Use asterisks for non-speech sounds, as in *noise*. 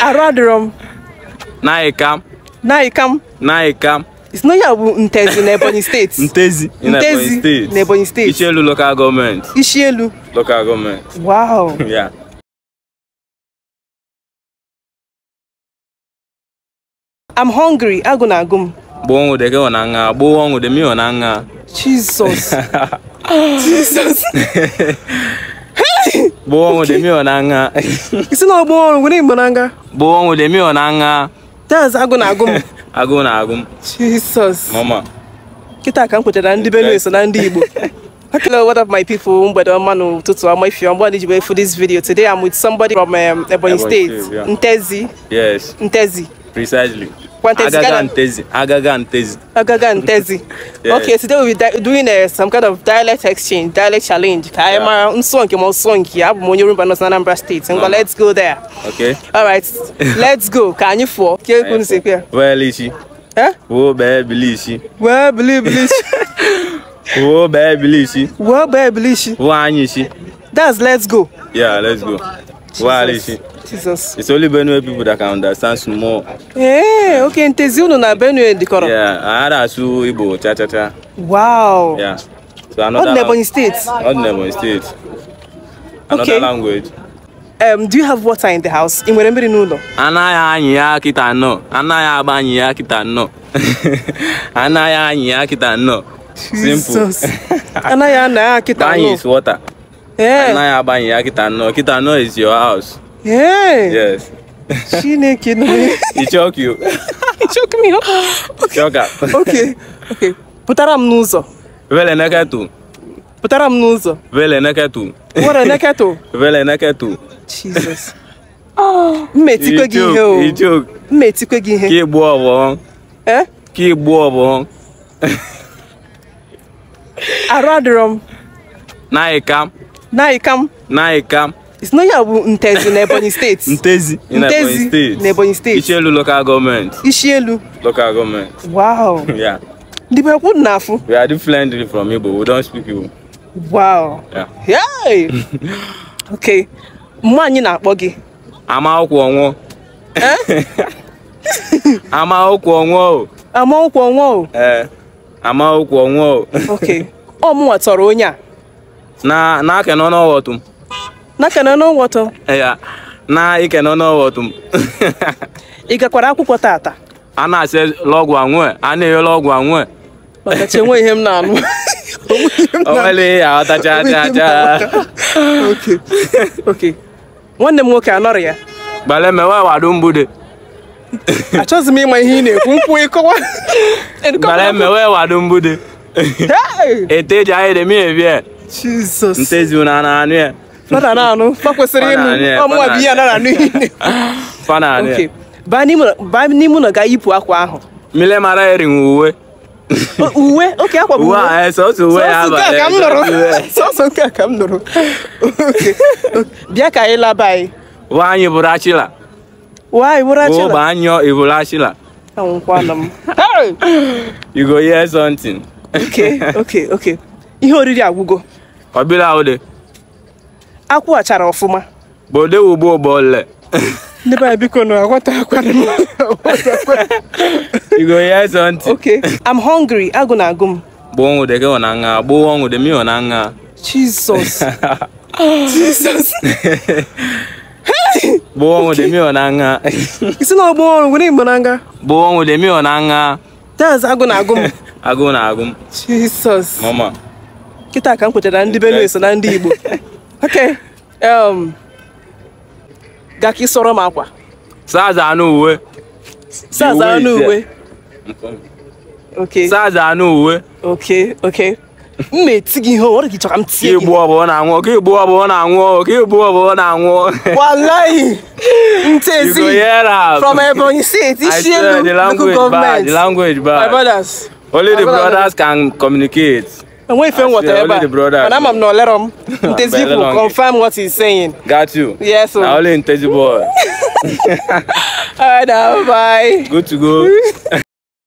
arụ adịrọ m naịkam naịkam na isi n'onye a bụ ntezi na ebonyi steeti ntezi ntezi na ebonyi steeti ichielu lokal gọọmenti ichielu Local Government wow *laughs* yeah. I'm hungry go na agụ m gboo ọnwụde gị na nha gboo ọnwụde m na nha Jesus *laughs* Jesus *laughs* *laughs* isi na ọgbọ ọrụ nwere igbo na nga dance agụ na-agụ m agụ na-agụ m Jesus kịta ka m kwetara ndị Benue so na ndị Igbo Hello, *laughs* what up, my people? Mbedo Manu Tutu. I'm with you. I'm glad you were for this video. Today, I'm with somebody from um, Ebony, Ebony State, State yeah. Ntezi. Yes. Ntezi. Precisely. kwa Ntezi Aga Ntezi. Aga Ntezi. Aga Ntezi. *laughs* yeah. Okay, today we'll be doing uh, some kind of dialect exchange, dialect challenge. I'm yeah. Msongi, Msongi. I'm Monyurumba, North Anambra State. And uh -huh. let's go there. Okay. All right. *laughs* let's go. Can you for? Kile kunisikia. Wewe lishi. Eh? Wewe babe lishi. Wewe *laughs* believe lishi. Wewe babe lishi. Wewe babe lishi. Wewe anyishi. That's let's go. Yeah, let's go. Why Jesus. It's only Benue people that can understand small. Hey, eh, okay, In ntezi unu na Benue dikoro. Yeah, ahara su Igbo cha cha cha. Wow. Yeah. So another Not State. Not State. Another okay. language. Um, do you have water in the house? I nwere mmiri n'ụlọ? Anaghị anyị ya kita nnọọ. Anaghị agba anyị ya kita nnọọ. Anaghị anyị ya kita no. Simple. Anaghị ana ya kita no. Banyị is water. anaghị agbanye ya kịta nọ kịta nọ is your house eh. yes chineke nọ ichọkụ ichọkụ mi chọka okay okay pụtara m n'ụzọ vele neketu pụtara m n'ụzọ vele neketu were neketu vele neketu *laughs* jesus *laughs* oh, mmetikwe gị ihe o mmetikwe gị ihe ka igbu ọbọ eh? ka igbu ọbọ arụ adịrọ m *laughs* na ịka Naikam. Naikam. It's not ya bụ Ntezi na Ebonyi steeti. *laughs* Ntezi Ntezi na Ebonyi steeti. Ishielu local government. Ishielu. Local government. Wow. *laughs* yeah. The people na afụ. We are differently from Igbo. We don't speak Igbo. Wow. Yeah. *laughs* okay. Mgbe anyị na-akpọ gị. Amaokwu ọnwụ. Eh? Amaokwu ọnwụ o. Amaokwu ọnwụ o. Ee. Eh. Amaokwu ọnwụ o. Okay. Ọ mụwa tọrọ onye a. na na kenono no wotum na kenono no wotum ya *laughs* na ikenono no wotum ị gakwara akwụkwọ tata a na-asị lọgwụ anwụ a na-enye lọgwụ anwụ maka chi enwe ihe m na-anụ *laughs* onwere ya ọtacha aja aja nwanne m nwoke anọrọ ya gbale mewe wadu mbude *laughs* achọghịzi m ịma ihe ị na-ekwu mkpu ịkọwa gbale mewe wadu mbude ete eji ahịrị m evie jesus ntezi unu a na-anụ ya fada na-anụ fa kwesịrị ịnụ ọmụwa bụ ihe a na-anụ ihe *laughs* fa na-anụ ya baa n'ime ụlọ ga yipụ akwa ahụ mile mara eri uwe uwe oke akwa bụ uwe eh, sọsọ uwe ya abalị ka eh, m nụrụ *laughs* sọsọ nke a ka m nụrụ bịa ka anyị laba anyị nwaanyị bụrụ achịla nwaanyị bụrụ achịla ụba anyọ ịbụrụ achịla anwụkwanụ m you go hear something okay okay okay ihe oriri agwụgo ọbịla ụdị akwụghachara ọfụma bode ugbo ụbọle ndị baa biko na aghọta akwara m igo ya ịzọ ntị okay i'm hungry agụ na agụ m gbụọ ọnwụde gị na nha gbụọ ọnwụde mi na nha jesus jesus gbụọ ọnwụde mi na nha isi na ọgbụọ ọrụ nwere igbo na nha gbụọ ọnwụde mi na nha that's agụ na agụ m agụ na agụ m jesus mama kịta ka m kwetara ndị Benue so na ndị Igbo *laughs* ok um, ga ka ị sọrọ m akwa saza anụ uwe saza anụ uwe ok saza anụ uwe ok ok m na-eti gị ihe ọrụ gị chọrọ m tie gị igbu ọbụla na-anwụ ka igbu ọbụla na-anwụ ka igbu ọbụla na-anwụ walayi ntezi from Ebonyi steeti isi elu local government my brothers only the brothers can communicate And when you film whatever, the brother, and I'm not let him. *laughs* Intezibu, confirm what he's saying. Got you. Yes. Yeah, so. only Intezibu. *laughs* All right, now, bye. Good to go. *laughs*